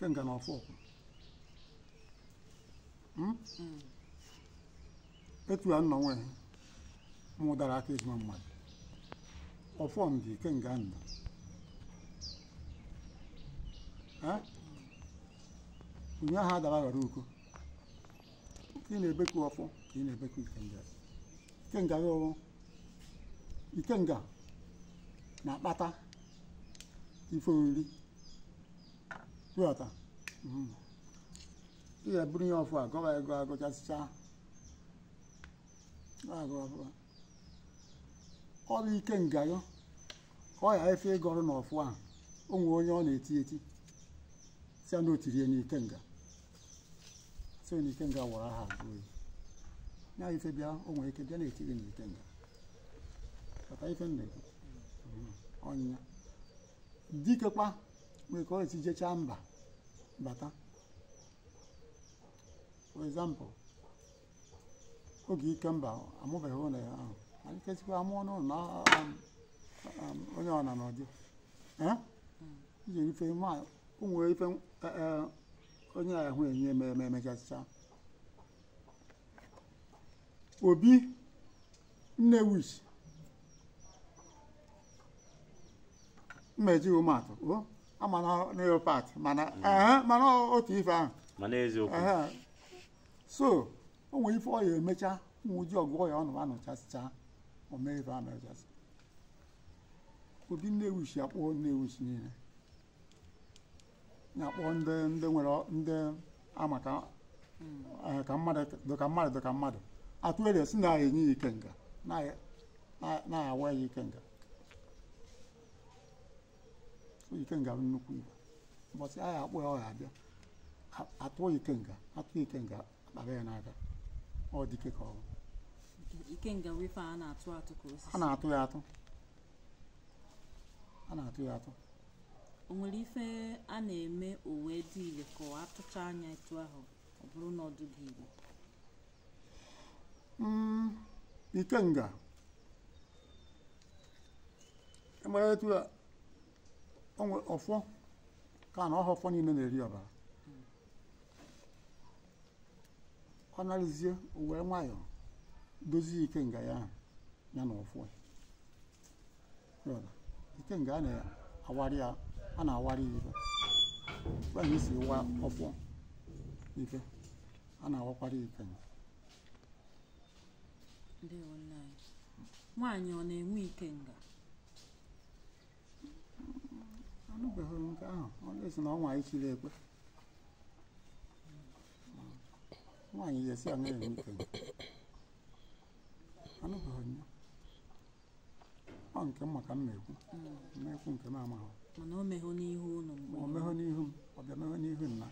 Ike nga na ọfọ hmm? hmm. etu a nnọ nwe mụ dara aka ezigbo mmadụ ọfọ m ike nga ndụ onye ahụ adara ghara uko ka ị na-ebeku ọfọ ka ị na-ebeku ikenga ikenga gị ike ikenga na-akpata ife nri. ịghọta mm-hmm. ị ga-eburu ya ọfụ agụba ego agụchasịcha ọ bụ ike ngayọ ka ọ ghara efe ịga ọrụ n'ọfụ ahụ o onye ọ na-eti eti si na nga nga ike na-eti gị n'ike nga mm-hmm. ọnyịnya nweke o si jechaa mba bata for example oge ike mba amụbeghị ụlọ ya ahụ alikesikwa amụọ n'ụlọ na um, um, onye ọna na ọdị iji ife ụmụ ife eh, eh, onye ahụ enye me eme emechasịcha obi nnewish mmeji ụmụ atụ o oh. leopard mana mana otu ife ahụ mana eziokwu so o nwere ife ọ ya emecha nwụji ọgwụgwọ ya ọnụ anụchasịcha omee ife ahụ mechasị obi Nnewi si akpọ Nnewi si niile na-akpọ ndị ndị nwere ndị amaka ka mmadụ dịka mmadụ dịka mmadụ atụere si na-enye ya nga na-awa ya ike nga. ike nga bụ nnukwu igwe ụbọchị agha akpụ ya ọ abịa atụọ ike nga atụ ike nga ya n'aka ọ dike ka ọ bụ a na-atụ ya atụ a na-atụ ya atụ o nwere ife a na-eme o dị ile ka ọ atụcha anya etu ahụ ọ bụrụ na mm, ikenga e onwe ọfọ ka na ọha ọfọ niile na-eri ọbara ọ narịzie wee nwayọọ dozie ike nga ya ya na ọfọ ike nga a na-awari ya a na-awari si wa ọfọ ike a na-awakwara ike nwaanyị ọ na-enwe ikenga anụbeghị nke ahụ onye si na ọnwa ichiri ekpe nwaanyị ya esi aṅụ ewu ikenye anụbeghị ya ọ nke m maka mmekwu mmekwu nke m amaghị mana o mehụ n'ihu unu o mehụ n'ihu m ọ bịa mehụ n'ihu nna